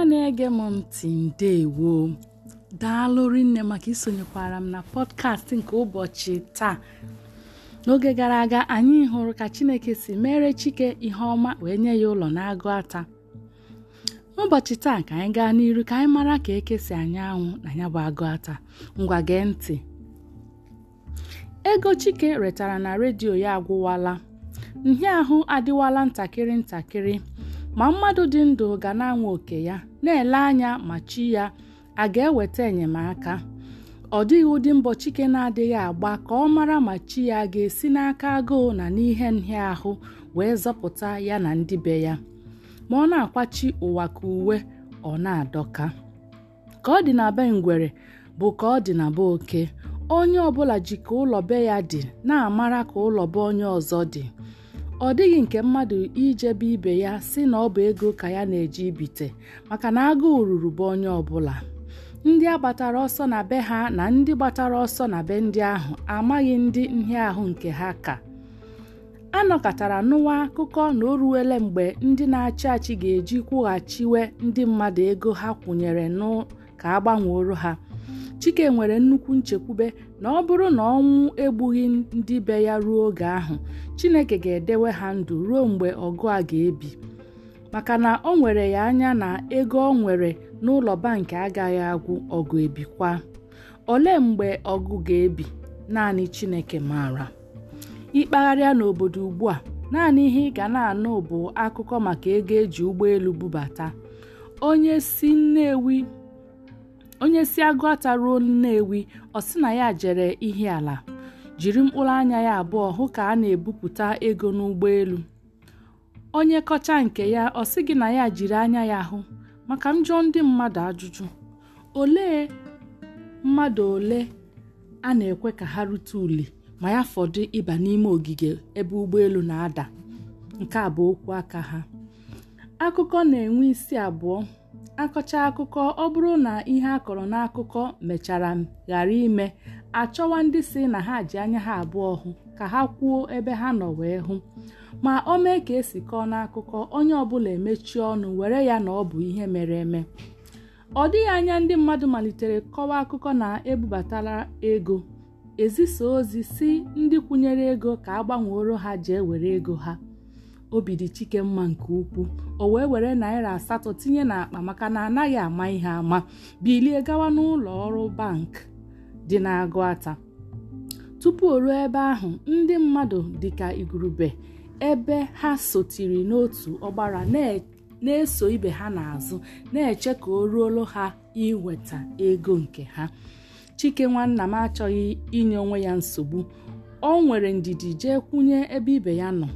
ọma na-ege m ntị ndewo daalụ rinne maka isonyekwara m na pọdkast nke ụbọchị taa n'oge gara aga anyị hụrụ ka Chineke si mere Chike ihe ọma wee nye ya ụlọ na-agụ ata n'ụbọchị taa ka anyị gaa n'iru ka anyị mara ka ekesi si anya anwụ na ya bụ agụ ata ngwa gee ntị ego Chike retara na redio ya agwụwala ahụ adịwala ntakịrị ntakịrị ma mmadụ dị ndụ ga na anwụ oke ya na-ele anya ma chi ya a ga-eweta enyemaka ọ dịghị ụdị mbọ Chike na-adịghị agba ka ọ mara ma chi ya ga-esi n'aka agụụ na n'ihe nhịa ahụ wee zọpụta ya na ndị be ya ma ọ na-akwachi ụwa ka uwe ọ na-adọka ka ọ dị na be ngwere bụ ka ọ dị na be oke onye ọbụla ji ka ụlọ be ya dị na-amara ka ụlọ be onye ọzọ dị ọ dịghị nke mmadụ ijebe ibe ya si na ọ bụ ego ka ya na-eji ibite maka na agụụ ruru bụ onye ọbụla ndị a gbatara ọsọ na be ha na ndị gbatara ọsọ na be ndị ahụ amaghị ndị ahụ nke ha ka a nọkọtara nụwa akụkọ na o ruwele mgbe ndị na-achị achị ga-eji kwụghachiwe ndị mmadụ ego ha kwụnyere nụ ka a gbanweoro ha chike nwere nnukwu nchekwube na ọ bụrụ na ọnwụ egbughị ndị be ya ruo oge ahụ chineke ga-edewe ha ndụ ruo mgbe ọgụ a ga-ebi maka na o nwere ya anya na ego ọ nwere n'ụlọ bankị agaghị agwụ ọgụ ebikwa olee mgbe ọgụ ga-ebi naanị chineke maara ịkpagharịa n'obodo ugbu a naanị ihe ị ga na-anụ bụ akụkọ maka ego eji ụgbọelu bubata onye si Nnewi onye si ata ruo nnewi ọ sị na ya jere ala jiri mkpụrụ anya ya abụọ hụ ka a na-ebupụta ego n'ụgbọelu onye kọcha nke ya ọ sị gị na ya jiri anya ya hụ maka m ndị mmadụ ajụjụ olee mmadụ ole a na-ekwe ka ha rute uli ma ya fọdụ ịba n'ime ogige ebe ụgbọelu na-ada nke a bụ okwu aka ha akụkọ na-enwe isi abụọ akọcha akụkọ ọ bụrụ na ihe a kọrọ n'akụkọ mechara ghara ime achọwa ndị si na ha ji anya ha abụọ hụ ka ha kwuo ebe ha nọ wee hụ ma o mee ka esi kọọ n'akụkọ onye ọbụla emechie ọnụ were ya na ọ bụ ihe mere eme ọ dịghị anya ndị mmadụ malitere kọwa akụkọ na ebubatala ego ezisa ozi si ndị kwụnyere ego ka a gbanweoro ha jee were ego ha obi dị chike mma nke ukwuu o wee were naira asatọ tinye n'akpa maka na anaghị ama ihe ama bilie gawa n'ụlọ ọrụ bank dị n'agụata tupu o ruo ebe ahụ ndị mmadụ dịka igurube ebe ha sotiri n'otu ọgbara na-eso ibe ha n'azụ na-eche ka o ruolu ha iweta ego nke ha chike nwanna m achọghị inye onwe ya nsogbu o nwere ndidi jee kwụnye ebe ibe ya nọ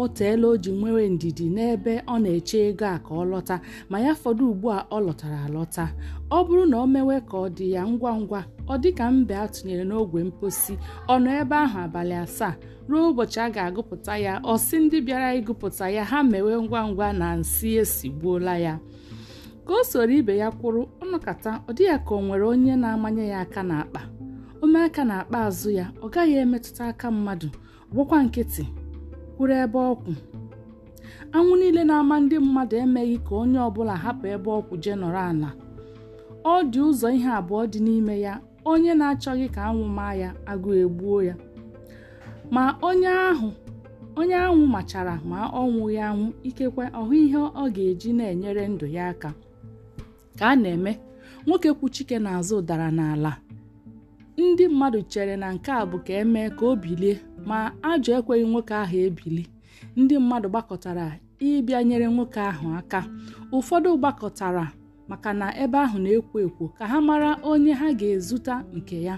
o teela o ji nwere ndidi n'ebe ọ na-eche ego a ka ọ lọta ma ya fọdụ ugbu a ọ lọtara alọta ọ bụrụ na o mewe ka ọ dị ya ngwa ngwa ọ dị ka mbe a tụnyere n'ogwe mposi ọ nọ ebe ahụ abalị asaa ruo ụbọchị a ga-agụpụta ya ọ sị ndị bịara ịgụpụta ya ha mewe ngwa ngwa na nsị esigbuola ya ka o soro ibe ya kwụrụ ọnụkata ọ dị ya ka o nwere onye na-amanye ya aka n'akpa omeaka aka n'akpa azụ ya ọ gaghị emetụta aka mmadụ gwụkwa nkịtị kwuru ebe ọkwụ anwụ niile na-ama ndị mmadụ emeghị ka onye ọbụla hapụ ebe ọkwụ jee nọrọ ala ọ dị ụzọ ihe abụọ dị n'ime ya onye na-achọghị ka anwụ maa ya agụ egbuo ya ma onye ahụ onye anwụ machara ma ọnwụghị anwụ ikekwe ọhụ ihe ọ ga-eji na-enyere ndụ ya aka ka a na-eme nwoke kwu chike n'azụ dara n'ala ndị mmadụ chere na nke a bụ ka emee ka o bilie ma ajọ ekweghị nwoke ahụ ebili ndị mmadụ gbakọtara ịbịa nyere nwoke ahụ aka ụfọdụ gbakọtara maka na ebe ahụ na-ekwo ekwo ka ha mara onye ha ga ezuta nke ya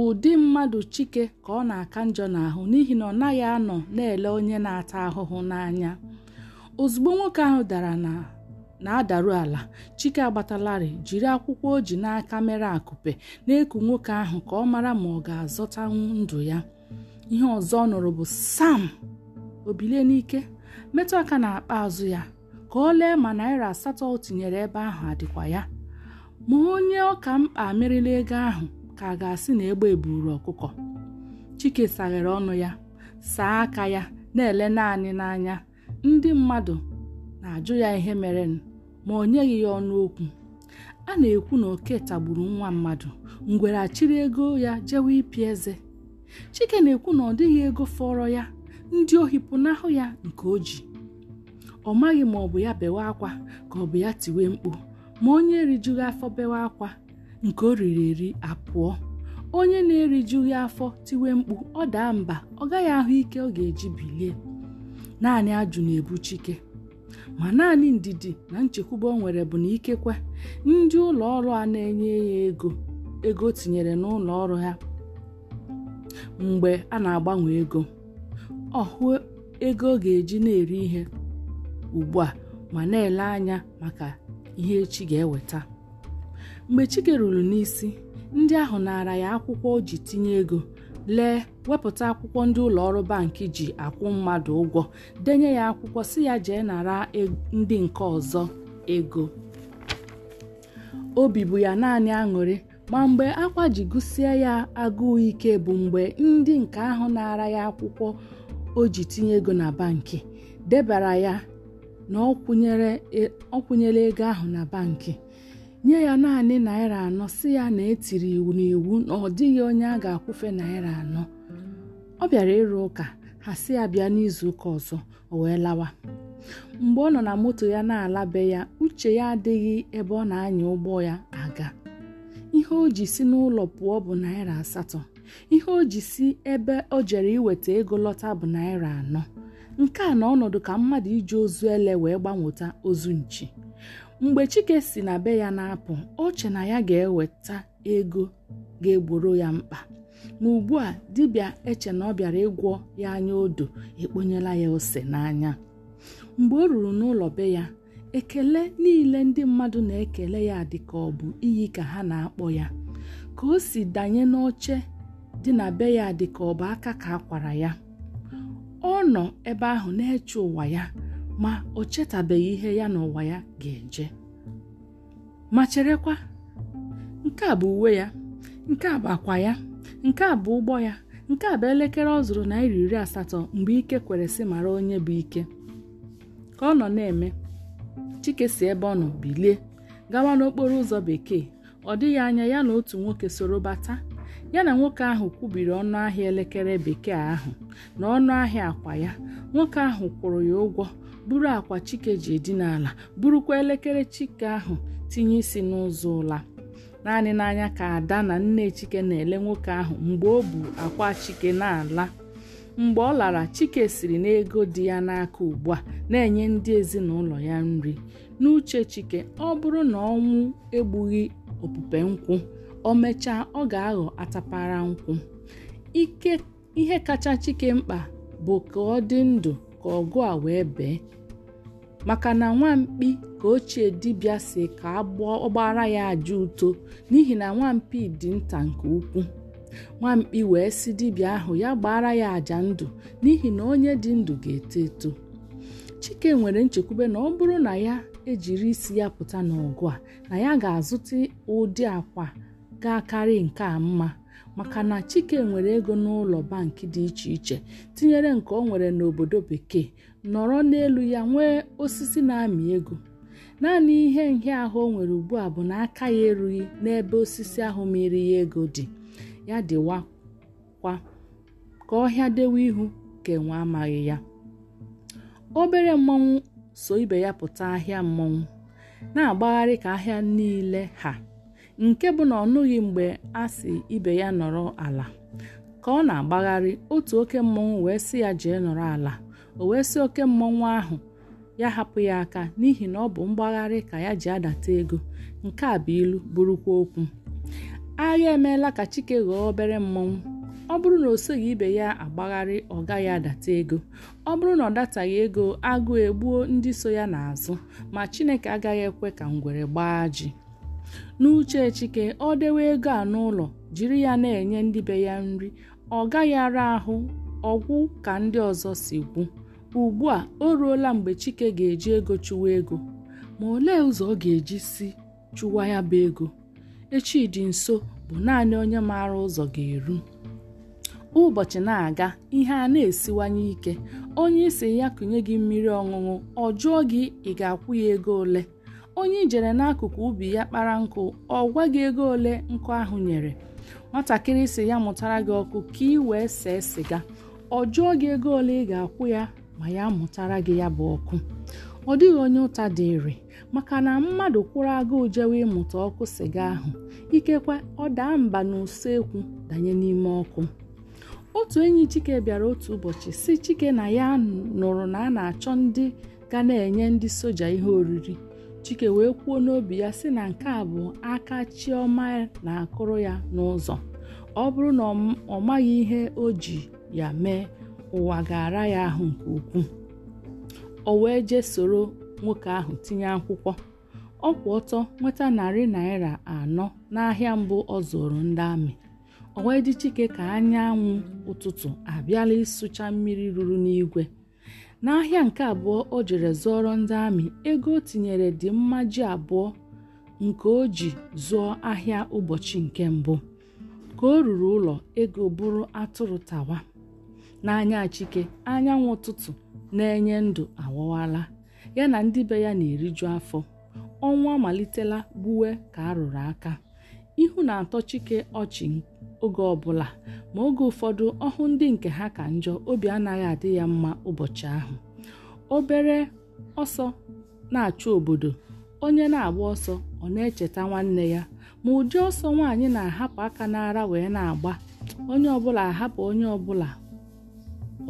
ụdị mmadụ chike ka ọ na-aka njọ n'ahụ n'ihi na ọ naghị anọ na-ele onye na-ata ahụhụ n'anya ozugbo nwoke ahụ dara na na-adaru ala chike agbatalarị jiri akwụkwọ o ji n'aka mere akụpe na-eku nwoke ahụ ka ọ mara ma ọ ga-azọtanwu ndụ ya ihe ọzọ ọ nụrụ bụ sam o n'ike metụ aka na akpa azụ ya ka ọ lee ma naira asatọ o tinyere ebe ahụ adịkwa ya ma onye ọka mkpa merila ego ahụ ka a ga-asị na egbe eburu ọkụkọ chike saghere ọnụ ya saa aka ya na-ele naanị n'anya ndị mmadụ na-ajụ ya ihe mere ma o nyeghị ya ọnụ okwu a na-ekwu na oke tagburu nwa mmadụ ngwere achịrị ego ya jewe ipi eze chike na-ekwu na ọ dịghị ego fọrọ ya ndị ohi pụnahụ ya nke o ji ọ maghị ma ọ bụ ya bewe akwa ka ọ bụ ya tiwe mkpu ma onye rijughị afọ bewe akwa nke o riri eri apụọ onye na-erijughị afọ tiwe mkpu ọ daa mba ọ gaghị ahụ ike ọ ga-eji bilie naanị ajụ na-ebu chike ma naanị ndidi na nchekwube o nwere bụ na ikekwe ndị ụlọ ọrụ a na-enye ya ego ego tinyere n'ụlọ ọrụ ha mgbe a na-agbanwe ego ọ hụ ego ọ ga-eji na-eri ihe ugbu a ma na-ele anya maka ihe echi ga-eweta mgbe chike ruru n'isi ndị ahụ nara ya akwụkwọ o ji tinye ego lee wepụta akwụkwọ ndị ụlọ ọrụ bankị ji akwụ mmadụ ụgwọ denye ya akwụkwọ si ya jee nara e-, ndị nke ọzọ ego obi bụ ya naanị aṅụrị ma mgbe akwa ji gụsịa ya agụụ ike bụ mgbe ndị nke ahụ na-ara ya akwụkwọ o ji tinye ego na bankị debara ya na ọ kwụnyere e, ego ahụ na bankị nye ya naanị naira anọ si ya na etiri iwu n'iwu na ọ dịghị onye a ga-akwụfe naira anọ ọ bịara ịrụ ụka ha si ya bịa n'izuụka ọzọ o wee lawa mgbe ọ nọ na moto ya na-alabe ya uche ya adịghị ebe ọ na-anya ụgbọ ya aga ihe o ji si n'ụlọ pụọ bụ naira asatọ ihe o ji si ebe o jere iweta ego lọta bụ naira anọ nke a na ọnọdụ ka mmadụ iji ozu ele wee gbanweta ozu nchi mgbe chike si na be ya na-apụ oche na ya ga-eweta ego ga-egboro ya mkpa ma ugbu a dibịa eche na ọ bịara ịgwọ ya anya odo ekponyela ya ose n'anya mgbe o ruru n'ụlọ be ya ekele niile ndị mmadụ na-ekele ya dị ka ọ bụ iyi ka ha na-akpọ ya ka o si danye n'oche dị na be ya dị ka ọ bụ aka ka akwara ya ọ nọ ebe ahụ na-eche ụwa ya ma o chetabeghị ihe ya na ụwa ya ga-eje ma cherekwa nke a bụ uwe ya nke a bụ akwa ya nke a bụ ụgbọ ya nke a bụ elekere ọ zụrụ naira iri asatọ mgbe ike kwere si mara onye bụ ike ka ọ nọ na-eme chike si ebe ọ nọ bilie gawa n'okporo ụzọ bekee ọ dịghị anya ya na otu nwoke soro bata ya na nwoke ahụ kwubiri ọnụ ahịa elekere bekee ahụ na ọnụ ahịa akwa ya nwoke ahụ kwụrụ ya ụgwọ buru akwa chike ji edina ala burukwa elekere chike ahụ tinye isi n'ụzọ ụla naanị n'anya ka ada na nne chike na-ele nwoke ahụ mgbe o bu akwa chike na-ala mgbe ọ lara chike siri n'ego dị ya n'aka ugbu a na-enye ndị ezinụlọ ya nri n'uche chike ọ bụrụ na ọnwụ egbughị opupe nkwụ o mechaa ọ ga-aghọ atapara nkwụ ihe kacha chike mkpa bụ ka ọ dị ndụ ka ọgụ a wee bee maka na nwampi ka ochie dibịa si ka ọgbara ya aja uto n'ihi na nwampi dị nta nke ukwuu nwamkpi wee sị dibịa ahụ ya gbara ya àjà ndụ n'ihi na onye dị ndụ ga-eto eto chike nwere nchekwube na ọ bụrụ na ya ejiri isi ya pụta n'ọgụ a na ya ga-azụta ụdị akwa ga-akarị nke a mma maka na chike nwere ego n'ụlọ bankị dị iche iche tinyere nke ọ nwere n'obodo bekee nọrọ n'elu ya nwee osisi na-amị ego naanị ihe ahụ o nwere ugbu a bụ na aka ya erughị n'ebe osisi ahụ mmiri ya ego dị ya kwa ka ọhịa dewe ihu ka enwe amaghị ya obere mmọnwụ so ibe ya pụta ahịa mmọnwụ na-agbagharị ka ahịa niile ha nke bụ na ọ nụghị mgbe a si ibe ya nọrọ ala ka ọ na-agbagharị otu oke mmọnwụ wee sị ya jee nọrọ ala o wee si oke mmọnwụ ahụ ya hapụ ya aka n'ihi na ọ bụ mgbagharị ka ya ji adata ego nke a bụ ilu bụrụkwa okwu agha emeela ka chike ghọọ obere mmọnwụ ọ bụrụ na o soghị ibe ya agbagharị ọ gaghị adata ego ọ bụrụ na ọ dataghị ego agụụ egbuo ndị so ya n'azụ ma chineke agaghị ekwe ka ngwere gbaa ji n'uche chike ọ dewe ego a n'ụlọ jiri ya na-enye ndị be ya nri ọ gaghị ara ahụ ọgwụ ka ndị ọzọ si gwu ugbu a o ruola mgbe chike ga-eji ego chụwa ego ma olee ụzọ ọ ga-eji si chụwa ya bụ ego echi dị nso bụ naanị onye maara ụzọ ga-eru ụbọchị na-aga ihe a na-esiwanye ike onye isi ya kụnye gị mmiri ọṅụṅụ ọ jụọ gị ị ga-akwụ ya ego ole onye ijere n'akụkụ ubi ya kpara nkụ ọ gwa gị ego ole nkụ ahụ nyere nwatakịrị si ya mụtara gị ọkụ ka ị wee see siga ọ jụọ gị ego ole ị ga-akwụ ya ma ya mụtara gị ya bụ ọkụ ọ dịghị onye ụta dịrị maka na mmadụ kwụrụ agụụ jewe ịmụta ọkụ sịga ahụ ikekwe ọ daa mba n'usekwu danye n'ime ọkụ otu enyi chike bịara otu ụbọchị si chike na ya nụrụ na a na-achọ ndị ga na-enye ndị soja ihe oriri chike wee kwuo n'obi ya sị na nke a bụ aka chioma na-akụrụ ya n'ụzọ ọ bụrụ na ọ maghị ihe o ji ya mee ụwa ga-ara ya ahụ nke ukwuu o wee jee soro nwoke ahụ tinye akwụkwọ ọ kwụ ọtọ nweta narị naira anọ n'ahịa mbụ ọ zụrụ ndị amị ọ wee dị chike ka anyanwụ ụtụtụ abịala ịsụcha mmiri ruru n'igwe n'ahịa nke abụọ o jere zụọrọ ndị amị ego o tinyere dị mmaji abụọ nke o ji zụọ ahịa ụbọchị nke mbụ ka o ruru ụlọ ego bụrụ atụrụ tawa n'anya chike anyanwụ ụtụtụ na-enye ndụ awọwala ya na ndị be ya na-eriju afọ ọnwa amalitela gbuwe ka a rụrụ aka ihu na-atọ chike ọchị oge ọbụla ma oge ụfọdụ ọhụ ndị nke ha ka njọ obi anaghị adị ya mma ụbọchị ahụ obere ọsọ na-achụ obodo onye na-agba ọsọ ọ na-echeta nwanne ya ma ụdị ọsọ nwaanyị na-ahapụ aka n'ara wee na-agba onye ọbụla ahapụ onye ọbụla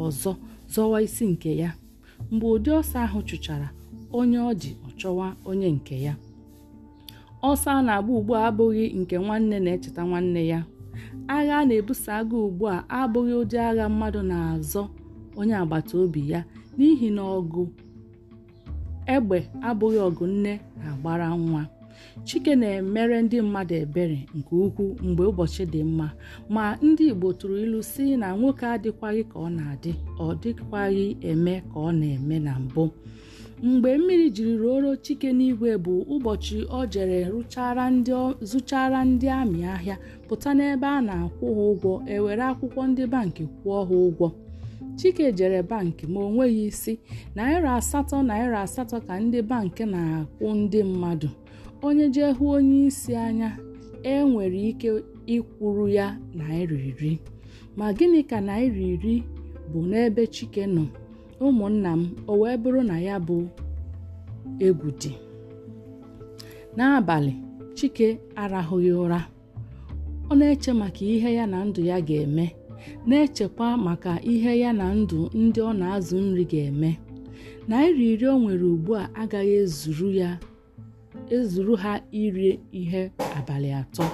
ọzọ zọwa isi nke ya mgbe ụdị ọsọ ahụ chụchara onye ọ ji ọchọwa onye nke ya ọsọ a na-agba ugbu a abụghị nke nwanne na-echeta nwanne ya agha a na-ebuso agha ugbu a abụghị ụdị agha mmadụ na-azọ onye agbata obi ya n'ihi na ọgụ egbe abụghị ọgụ nne na-agbara nwa chike na-emere ndị mmadụ ebere nke ukwuu mgbe ụbọchị dị mma ma ndị igbo tụrụ ilu si na nwoke adịkwaghị ka ọ na-adị ọ dịkwaghị eme ka ọ na-eme na mbụ mgbe mmiri jiri ruoro chike n'igwe bụ ụbọchị ọ jere zụchara ndị amị ahịa pụta n'ebe a na-akwụ ha ụgwọ ewere akwụkwọ ndị bankị kwụọ ha ụgwọ chike jere bankị ma o nweghị isi naira asatọ naira asatọ ka ndị bankị na-akwụ ndị mmadụ onye jee hụ onye isi anya e nwere ike ịkwụrụ ya naira iri ma gịnị ka naira iri bụ n'ebe chike nọ ụmụnna m o wee bụrụ na ya bụ egwu dị n'abalị chike arahụghị ụra ọ na-eche maka ihe ya na ndụ ya ga-eme na-echekwa maka ihe ya na ndụ ndị ọ na-azụ nri ga-eme naira iri o nwere ugbu a agaghị ezuru ha iri ihe abalị atọ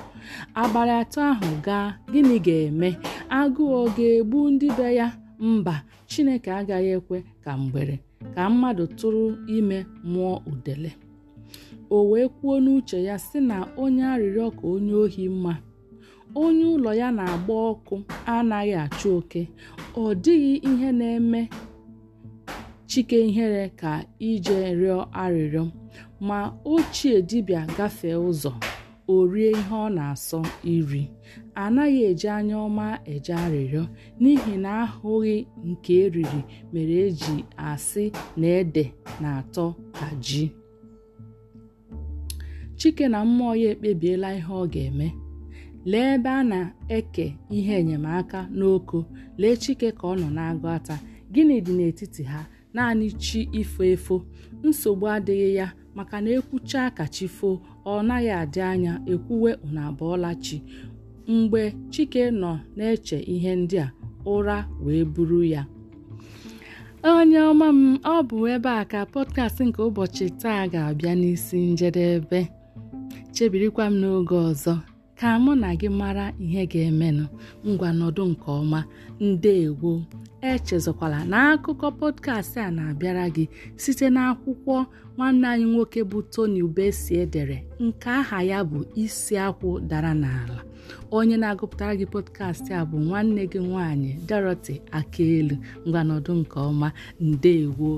abalị atọ ahụ gaa gịnị ga-eme agụụ ọ ga-egbu ndị be ya mba chineke agaghị ekwe ka mgbere ka mmadụ tụrụ ime mụọ udele o wee kwuo n'uche ya sị na onye arịrịọ ka onye ohi mma onye ụlọ ya na-agba ọkụ anaghị achụ oke ọ dịghị ihe na-eme chike ihere ka ije rịọ arịrịọ ma ochie dibịa gafee ụzọ o rie ihe ọ na-asọ iri anaghị eji anya ọma eje arịrịọ n'ihi na ahụghị nke eriri mere eji asị na ede na-atọ ka ji chike na mmụọ ya ekpebiela ihe ọ ga-eme lee ebe a na-eke ihe enyemaka n'oko lee chike ka ọ nọ na-agụ ata gịnị dị n'etiti ha naanị chi ifo efo nsogbu adịghị ya maka na ekwucha ka chi foo ọ naghị adị anya ekwuwe unu chi mgbe chike nọ na-eche ihe ndị a ụra wee buru ya onye ọma m ọ bụ ebe a ka podcast nke ụbọchị taa ga-abịa n'isi njedebe chebirikwa m n'oge ọzọ ka mụ na gị mara ihe ga-emenụ ngwa nke ọma ndewo echezokwala n'akụkọ akụkọ pọdkastị a na-abịara gị site n'akwụkwọ nwanne anyị nwoke bụ Tony ubesi edere nke aha ya bụ isi akwụ dara n'ala onye na-agụpụtara gị pọdkastị a bụ nwanne gị nwaanyị Dorothy Akaelu ngwanọdụ nke ọma ndewo